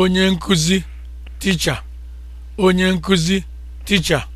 onye nkuzi ticha? onye nkuzi ticha?